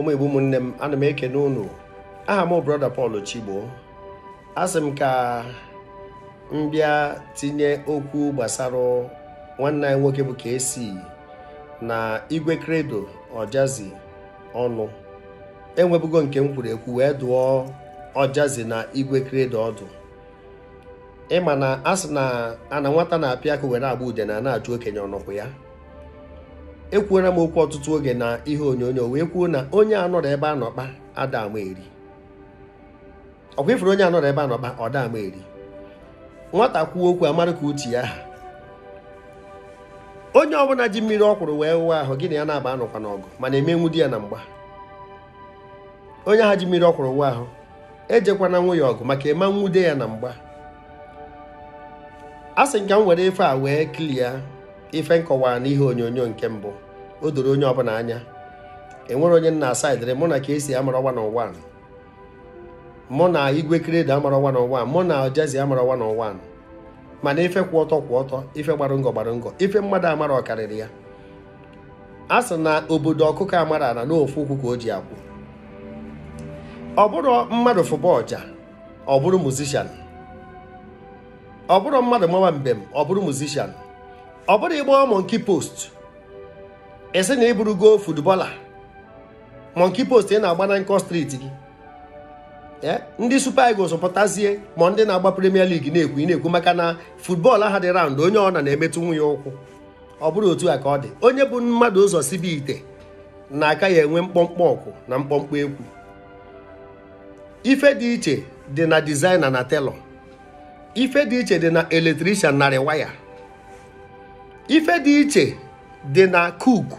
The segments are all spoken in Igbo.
ụmụ igbo ụmụnne m ana m ekene unu aha m brọda Paul Chigbo asị m ka m bịa tinye okwu gbasara nwanne anyị nwoke bụ kc na igwe kredo Ojazi ọnụ enwebugo nke m kwuru ekwu wee dụọ Ojazi na igwe kredo ọdụ ịma na asị na ana nwata na-apịa aka were agba ude na na-ajụ okenye ọnọkwụ ya ekwuola m okwu ọtụtụ oge na ihe onyonyo wee kwuo na onye anọrọ ebe anọkpa adam eri ọkwa ifuru onye anọrọ ebe anọkpa ọ dam eri nwata kwuo okwu amara ka uche ya ha onye ọbụla ji mmiri ọkwụrụ wee wụwa ahụ gị na ya na-aba anụkwa n'ọgụ mana emenwu di ya na mgba onye ha ji mmiri ọkwụrụ kwụrụ wụwa ahụ ejekwana nwa ya ọgụ maka ịma e nwude ya na mgba a sị m ka m were ife a wee klia. ife nkọwara n'ihe onyonyo nke mbụ o doro onye ọbụla anya enwere onye nna asaidịrị mụ na ka esi amara ọwa na ụwa mụ na igwe kreda amara ọwa na ụwa mụ na ojazi amara ọwa na ụwa mana ife kwụ ọtọ kwụ ọtọ ife gbara ngọ gbara ngọ ife mmadụ amara ọkarịrị ya a sị na obodo ọkụkọ amara ala n'ofu ukwu ka o ji akwụ ọ bụrụ mmadụ fụba ọja ọ bụrụ musishan ọ bụrụ mmadụ mawa mbem ọ bụrụ musishan ọ bụrụ ịgba monki post esi na ịbụrụgo futbọla monki post ị na-agba na nkọ striti gị eh, ndị super eagles pụtazie ma ndị na-agba premier league na-ekwu ị na-ekwu maka na futbọọlụ ahụ dị raund onye ọ na na-emetụ nwunye ụkwụ ọ bụrụ otu a ka ọ dị onye bụ mmadụ ụzọ sibi ite na aka ya enwe mkpọmkpọ ọkụ na mkpọmkpọ ekwu ife dị iche dị na dizaina na telọ ife dị iche dị na eletrishan narị waya ife dị iche dị na cook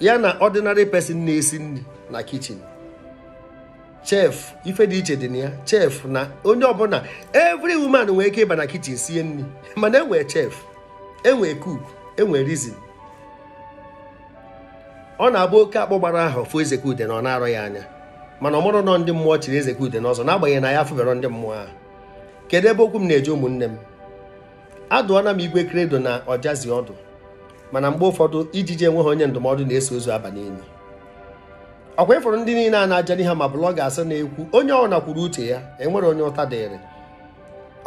ya na ordinary person na-esi nri na kitchen chef ife dị iche dị na ya chef na onye ọbụla every woman nwere ike ịba na kitchen sie nri mana enwee chef enwee cook enwee reason ọ na-abụ oke akpọ gbara ahụ fụ Ezekude na ọ na-arọ ya anya mana ọmụrụ nọ ndị mmụọ chiri Ezekude n'ọzọ n'agbanyeghị na ya afụbero ndị mmụọ ahụ kedu ebe okwu m na-eje ụmụnne m adụọna m igwe kredo na ọjazi ọdụ mana mgbe ụfọdụ ijiji enweghị onye ndụmọdụ na-eso ozu aba n'enyi ọkwa ịfụrụ ndị niile a na-ajali ha ma blọga asị na-ekwu onye ọbụla kwuru uche ya enwere onye ụta dịrị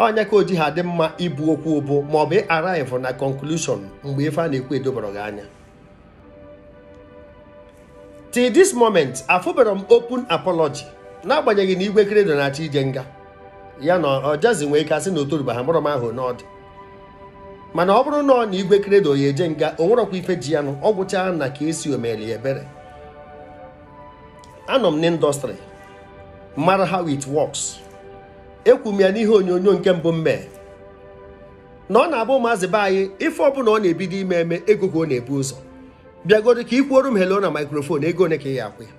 onye ka o ji ha dị mma ibu okwu ụbụ ma ọ bụ ịaraivụ na konklushọn mgbe ife a na-ekwu edobara gị anya till this moment afụbara m open apology n'agbanyeghị na igwe kredo na-achọ ije nga ya na ọjazi nwee ike asị na otoruba ha mụrụ m ahụ n'ọdị mana ọ bụrụ na ọ na igwe kredo ya eje nga o nwerọkwa ife ji ya nụ ọ gwụchaa na ka esi omeli ebere anọ m n'indọstrị mara how it works ekwu m ya n'ihe onyonyo nke mbụ mmee na ọ na-abụ maazị be anyị ife ọbụla ọ na-ebido ime eme ego ka ọ na-ebu ụzọ bịagodo ka ikwuoro m helo na maikrofon ego one ka ị ya akwụ ya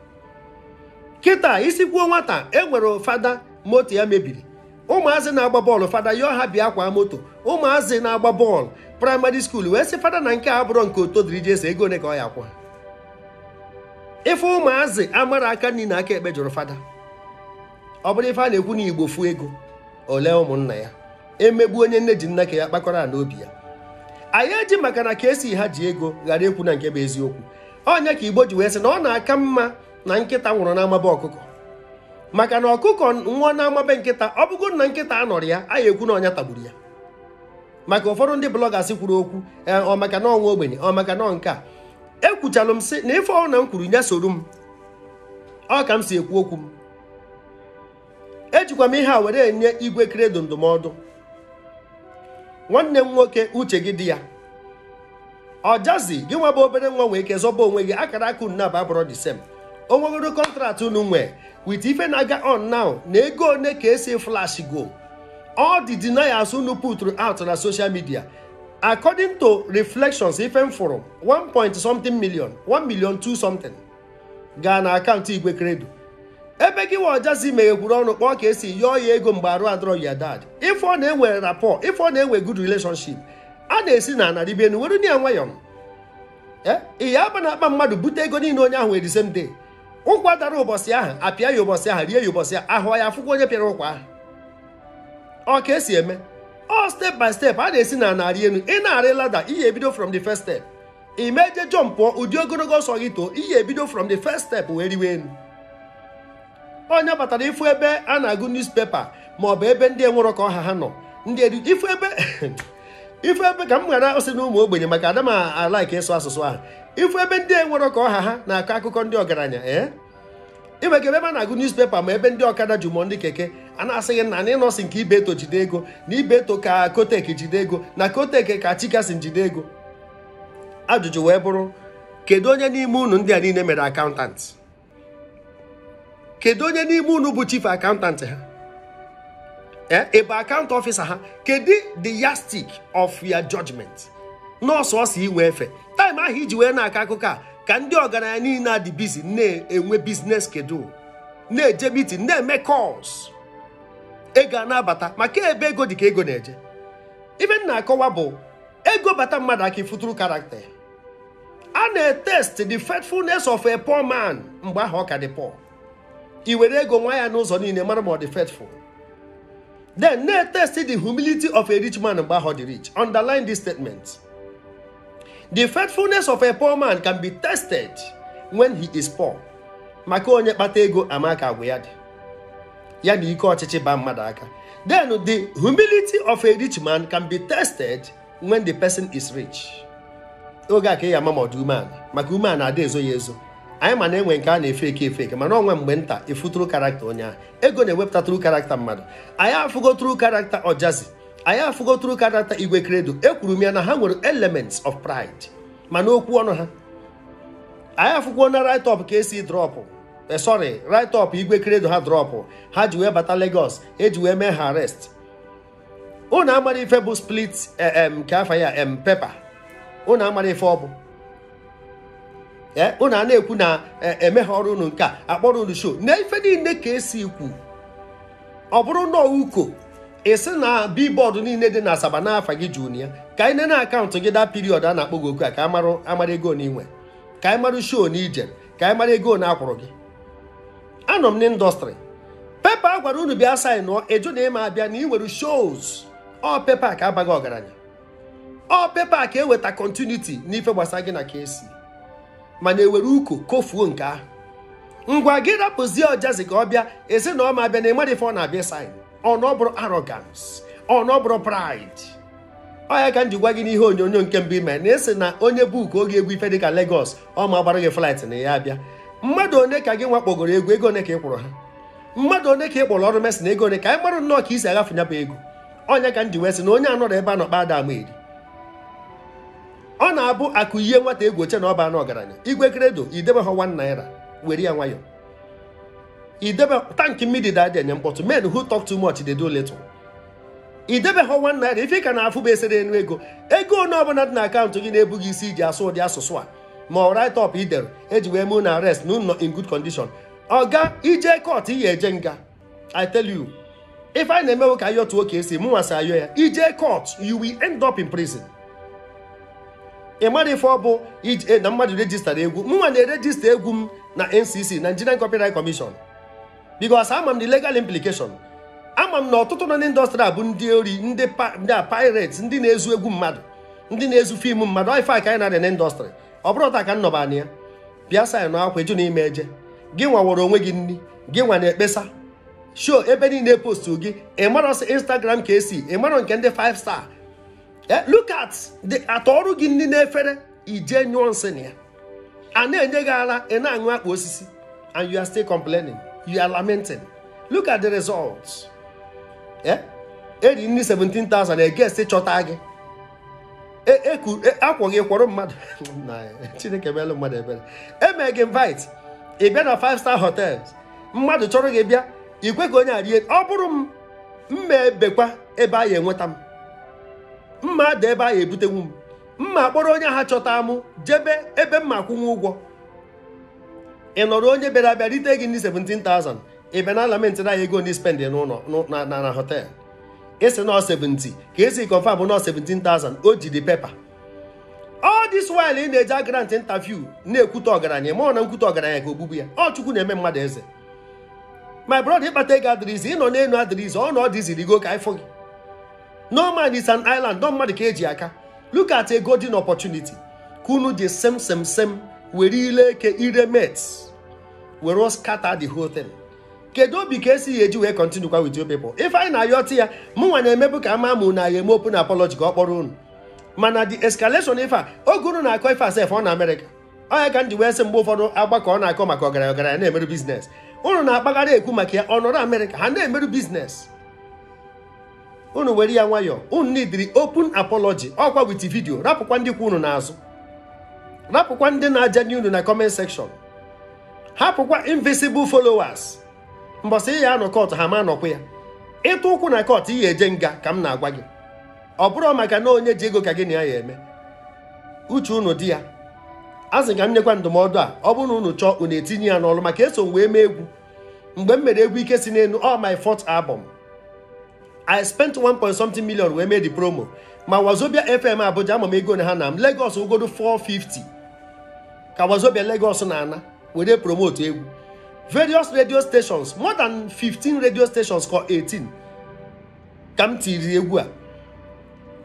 kịta isi kwuo nwata e nwere fada moto ya mebiri ụmụazị na-agba bọọlụ fada yọọ ha bịa akwa moto ụmụazị na-agba bọọlụ praịmarị skuul wee sị fada na nke a bụrụ nke otodiri ji ese ego one ka ọ ya akwa ife ụmụazị amara aka nri na aka ekpe jụrụ fada ọ bụrụ ife a na-ekwu na igbo fuo ego ole ụmụnna ya emegbu onye nne ji nna ka ya kpakọrọ ala obi ya anyị eji maka na ka esi ha ji ego ghara ekwu na nke bụ eziokwu ọnya ka igbo ji wee sị na ọ na-aka mma na nkịta nwụrụ n'amaba ọkụkọ maka na ọkụkọ nwa na-amabe nkịta ọ bụgo na nkịta anọrọ ya a ekwu na ọnya tagburu ya maka ụfọdụ ndị blọgas kwuru okwu e, ọ maka na ọnwa ogbenye ọ maka na nke a ekwuchalụ m sị na ife ọhụrụ na m kwuru nye soro m ọ ka m si ekwu okwu m ejikwa m ihe a were enye igwe kredo ndụmọdụ nwanne m nwoke uche gị di ya ọjazi gị nwa bụ obere nwa nwee ike zọba onwe gị akara akụ nna bụ abụrọ the same onwegoro kọntraktị unu nwee with ife na-aga on now na ego one ka esi flash go all the deniers unu put out na social media according to reflections ife m fụrụ 1 point something million 1 million 2 something gaa na akaụntụ igwe kredo ebe gị wajazi meghekwuru ọnụ kpọọ ka esi yọọ ya ego mgbe arụ adọrọ ya dad ife ọ na-enwe rapport ife ọ na-enwe good relationship a na-esi na anarịbe enu were ya nwayọọ eh, ị ya aba na akpa mmadụ bute ego niile onye ahụ were the same day ụkwa dara ụbọchị ahụ apịa ya ụbọchị ahụ rie ya ụbọchị ahụ ahụ ya afụkwa onye pịara ụkwa ahụ ọ ka esi eme ọ step by step a na-esi na narị elu ị na-arị lada ihe ebido from the first step imeje jọm pụọ ụdị ogologo ọsọ gị too ihe ebido from the first step wee riwe elu onye batara ịfụ ebe a na-agụ newspaper maọbụ ebe ndị enwere ka ọha ha nọ ndị ifu ebe ife ebe ka m ghara osị na ụmụ ogbenye maka ada m ịsụ asụsụ ahụ ife ebe ndị e nwere ka ọha ha na-akọ akụkọ ndị ọgaranya ee eh? iweka ebe a na-agụ newspaper ma ebe ndị ọkada ji ndị keke a na-asịghị na na ịnọsị nke ibeto jide ego na ibeto ka kotek jide ego na kotek ka chikasi jide ego ajụjụ wee bụrụ kedu onye n'ime unu ndị a niile mere akaụntant kedu onye n'ime unu bụ chief akaụntantị ha ebe akaụntụ ọfịsa ha kedu the yastic of your judgment nọọsụ ọsọ iwe efe taịm ahụ iji wee na-akọ akụkọ a ka ndị ọgaranya niile adị bizi na-enwe biznes kedu na-eje mitin na-eme kọls ego a na-abata maka ebe ego dị ka ego na-eje ibe m na-akọwa bụ ego bata mmadụ aka ifuturu karakta a na-etest the faithfulness of a poor man mgbe ahụ ọ ka dị poor i were ego nwa ya n'ụzọ niile mara ma ọ dị faithful Then Nay see the humility of a rich man and how the rich. Underline this statement. The faithfulness of a poor man can be tested when he is poor. maka onye batego amaka agwa ya dị ya na ike then the humility of a rich man can be tested when the person is rich Oga ke ka ị ya ama maka na dezo yezo. anyị ma na-enwe nke a na-efe eke efe eke mana onwe mgbe nta efu tru karakta onye ahụ ego na-ewepụta tru karakta mmadụ anyị afụgo tru karakta ọjazi anyị afụgo tru karakta igwe kredo ekwuru m ya na ha nwere elements of pride mana okwu ọnụ ha anyị afụkwuo na right top ka esi drọpụ eh, sorry right igwe kredo ha drọpụ ha ji wee bata Lagos eji wee mee ha rest ụnụ amara bụ split nke eh, afa ya pepa ụnụ amara ife ọ bụ unu eh, a na-ekwu na eh, emeghe ọrụ unu nke a akpọrọ unu show na niile ka esi kwu ọ bụrụ na uko esi na bibọọdụ niile dị na asaba n'afọ gị jụrụ ya ka anyị nene akaụntụ gị daa piriọdụ a na-akpọ gị oku a ka amara ego na inwe ka anyị mara show na ije ka anyị mara ego na akwụrụ gị anọ m n'ịndọstrị pepa a gwara unu bịa saị nụọ eju na ịma abịa na ị nwere shows ọ pepa ka abaghị ọgaranya ọ pepa ka eweta kọntiniti n'ife gbasara gị na ka esi mana ewere uko kofuo nke ahụ ngwa gị rapụzie ọjazi ka ọ bịa ezi na ma bịa na ịmara ife ọ na-abịa sain ọ na arrogance ọ pride ka m ji gwa gị n'ihe onyonyo nke mbụ ime na esi na onye buuku oge egwu ife dịka legos ọ ma agbara gị flight na ya abịa mmadụ one ka gị nwakpogoro egwu ego one ka ị kwụrụ ha mmadụ one ka ị kpọrọ ọrụ mesi na ego one ka anyị marụ nnọọ ka isi agafe nya ego ọnya ka m ji sị na onye anọrọ ebe a nọ kpa ada ama eri ọ na-abụ akụ ihe nwata egwu oche na ọba anụ ọgaranya igwe kredo idebe ha 1 naira were ya nwayọ idebe tankị mmiri dada enye mkpọtụ men who talk too much they do little idebe ha 1 naira ife ka na-afụ bụ esere enu ego ego one ọbụla dị na akaụntụ gị na-ebughị isi iji asụ ụdị asụsụ a ma ọ write up idere eji wee mee na arest na unu in good ọ ga ije kọt iyi eje nga i tell you ife anyị na-emewe ka ayọtụ tuo ka esi mụnwa si ayọ ya ije kọt you will end up in prison ị mara ife ọ bụ ije eh, na mmadụ rejistara egwu mnwa na-erejista egwu m na NCC Nigerian Copyright Commission because ama m the legal implication ama m na ọtụtụ na ndị indọstrị a bụ ndị ori ndị a ndị na-ezu egwu mmadụ ndị na-ezu fim mmadụ ife a ka anyị na-adị n'indọstrị ọ bụrụ ọta ka m nọba ya bịa sa na akwa eju na ime eje gị nwaworo onwe gị nri gị nwa na-ekpesa sho ebe niile postu gị ị marọsị Instagram ka esi ị nke ndị 5 star Eh, look at the atọrụ gị ndị na-efere ije nyụọ nsị na ya a na-enye gị ara ị na-aṅụ akpa osisi and you are still complaining you are lamenting look at the results eri eh, e nri 17,000 egesti chọta gị e, e akwọ gị kwọrọ mmadụ chineke meelụ mmadụ ebere eme gị invite ị bịa na 5 star hotels mmadụ chọrọ gị bịa ikwe gị onye arie ọ bụrụ m mma ebekwa ebe a ya enweta m mma dị ebe a ya ebutenwu m mma kpọrọ onye ha chọta mụ jebe ebe mma akwụnwe ụgwọ ị nọrọ onye bịara abịa rite gị ndị 17,000 ị bịa na alamenti na ya ego ndị spend n'ụlọ na hotel esi na 70 ka esi kọnfam bụ nọ 17,000 o jiri pepa Ọ dị while ị na-eji agrant interview na-ekwute ọgaranya ma ọ na nkwute ọgaranya ka ogbugbu ya ọ chukwu na-eme mmadụ eze my brother ịkpata ego adịrịzi na n'elu adịrịzi ọ na ọ dịzirigo ka ifo gị no man is an island mmadụ ka eji aka look at a golden opportunity ka unu ji sem sem sem were ile eke ire met were scatter the whole thing kedu obi ka esighị eji wee continue kwa with your people ife anyị na-ayọtụ ya mụnwa na-emebu ka ama mụ na ya eme open apology ka ọ kpọrọ unu mana the escalation ife a oge unu na-akọ ife asef ọ na Amerịka ọya ka m wee sị mgbe ụfọdụ agbakọ ọ na-akọ maka ọgaranya ọgaranya na-emerụ biznes unu na akpaghara ekwu maka ya ọ nọrọ Amerịka ha na-emerụ biznes unu were ya nwayọọ unu nidiri open apology ọkwa wit vidio rapụkwa ndị kwa unu n'azụ rapụkwa ndị na-ajanye unu na comment section hapụkwa invisible followers mbọsị ị ya anọ kọt ha ma anọkwa ya ịtụ ụkwụ na kọt ị eje nga ka m na-agwa gị ọ bụrụ maka na onye ji ego ka gị na ya ya eme uche unu di ya azị ka m nyekwa ndụmọdụ a ọ bụrụ na unu chọọ unu etinye ya n'ọlụ maka eso wee mee egwu mgbe m mere egwu ike si n'elu all my fourth album i spent 1 point something million wee made the promo ma wazobia fm abuja ama m ego na ha na m lagos ogodo 450 ka wazobia lagos na-ana were promote egwu various radio stations more than 15 radio stations ka 18 ka m tiri egwu a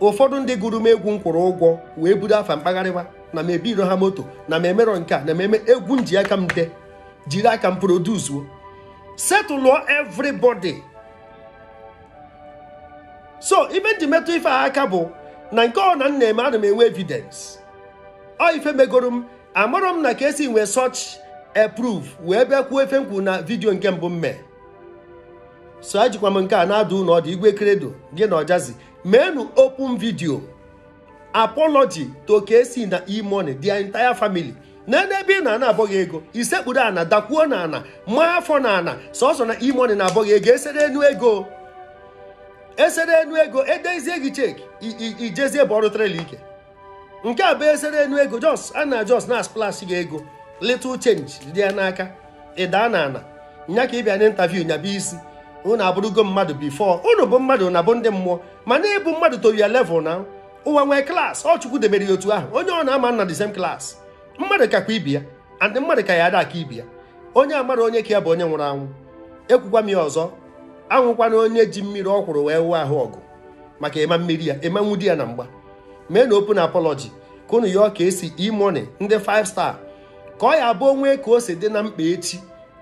ụfọdụ ndị gụrụ m egwu m kwụrụ ụgwọ wee budo afa mkpagharịwa na m ebiro ha moto na m emerọ nke a na m egwu m ji aka m jiri aka m produzuo setụlụọ everybody so ibe m ji metụ ife a aka bụ na nke ọ na m na-eme ana m enwe evidence ọ ife megoro m amarọ m na ka esi nwee such a wee bịa kwuo efe m na vidiyo nke mbụ mee so ejikwa m nke a na-adụ ụlọ ọdụ igwe kredo gị na ọjazi meenụ open vidio apology to na e-money the entire family na ebe ị na ana abọghị ego isekpuru ana dakwuo na ana maa afọ na ana sọsọ na e-money na abọghị ego esere enu ego esere enu ego edezie gị cheki ijezie bụ ọrụ trela ike nke a bụ esere enu ego jos a na jos na splash gị ego little change dị ya n'aka ịdaa na ana nya ka ị bịa nyabụ isi ụnụ abụrụgo mmadụ bifo ụnụ bụ mmadụ na bụ ndị mmụọ mana ịbụ mmadụ to ya na ụwa nwee klaasị ọ chukwu debere ya otu ahụ onye ọ na-ama na the same mmadụ kakwa ibi ya and mmadụ ka ya ada aka ibi ya onye amara onye ka ya bụ onye nwụrụ anwụ ekwukwa m ya ọzọ anwụkwana onye ji mmiri ọ kwụrụ wee wụọ ahụ ọgụ maka ịma mmiri ya ịmanwu di ya na mgba mee na open apology ka unu ọ ka esi imone ndị 5 star ka ọ ya bụ onwe ka o si dị na mkpa echi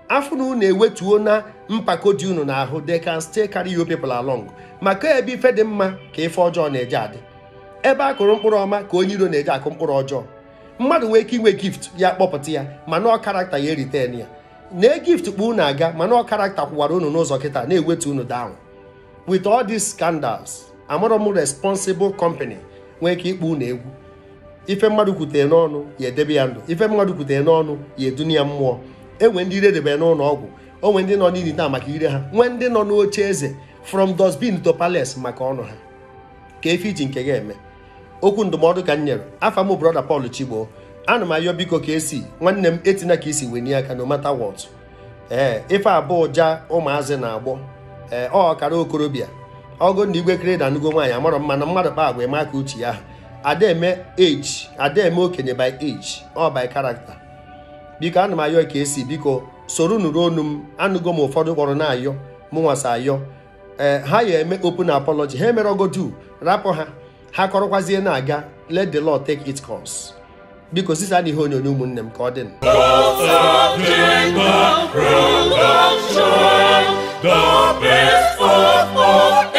afọ na unu ewetuo na mpako dị unu ahụ they can still carry you people along maka ebe ife dị mma ka ife ọjọọ na-eje adị ebe a kụrụ mkpụrụ ọma ka onye iro na-eje akụ mkpụrụ ọjọọ mmadụ nwee ike inwe gift ya kpọpụta ya mana ọ karakta ya eriten ya na gift kpu unu aga mana ọ karakta kwụwara unu n'ụzọ kịta na eweta unu down with all these scandals amụrụ m responsible company nwee ka ịkpụ unu egwu ife mmadụ kwutere n'ọnụ ya edebe ya ndụ ife mmadụ kwutere n'ọnụ ya eduni ya mmụọ enwe ndị iredebere n'ụlọ ọgwụ o nwee ndị nọ n'ili taa maka ire ha nwee ndị nọ n'oche eze from dustbin to palace maka ọnụ ha ka efe iji nke ga eme okwu ndụmọdụ ka m nyere afa m brọda Paul Chigbo ana m ayọ biko ka esi nwanne m etina ka isi e wenye aka no matter what ee eh, ife abụọ ja ụmụazị na-agbọ ee eh, ọ ọkara okorobịa ọgụ na igwe kere anụgo nwaanyị amarọ mma na mmadụ kpa agwa maka uche ya adaeme age adaeme okenye by age ọ by character biko ana m ayọ ka esi biko soro nụrụ onu m anụgo m ụfọdụ kpọrọ na-ayọ mụnwasa ayọ ee eh, ha ya eme open apology ha emere ogodu rapụ ha ha kọrọkwazie na-aga let the law take its course biko sisa adịghị onyonyo ụmụnne m ka ọ dị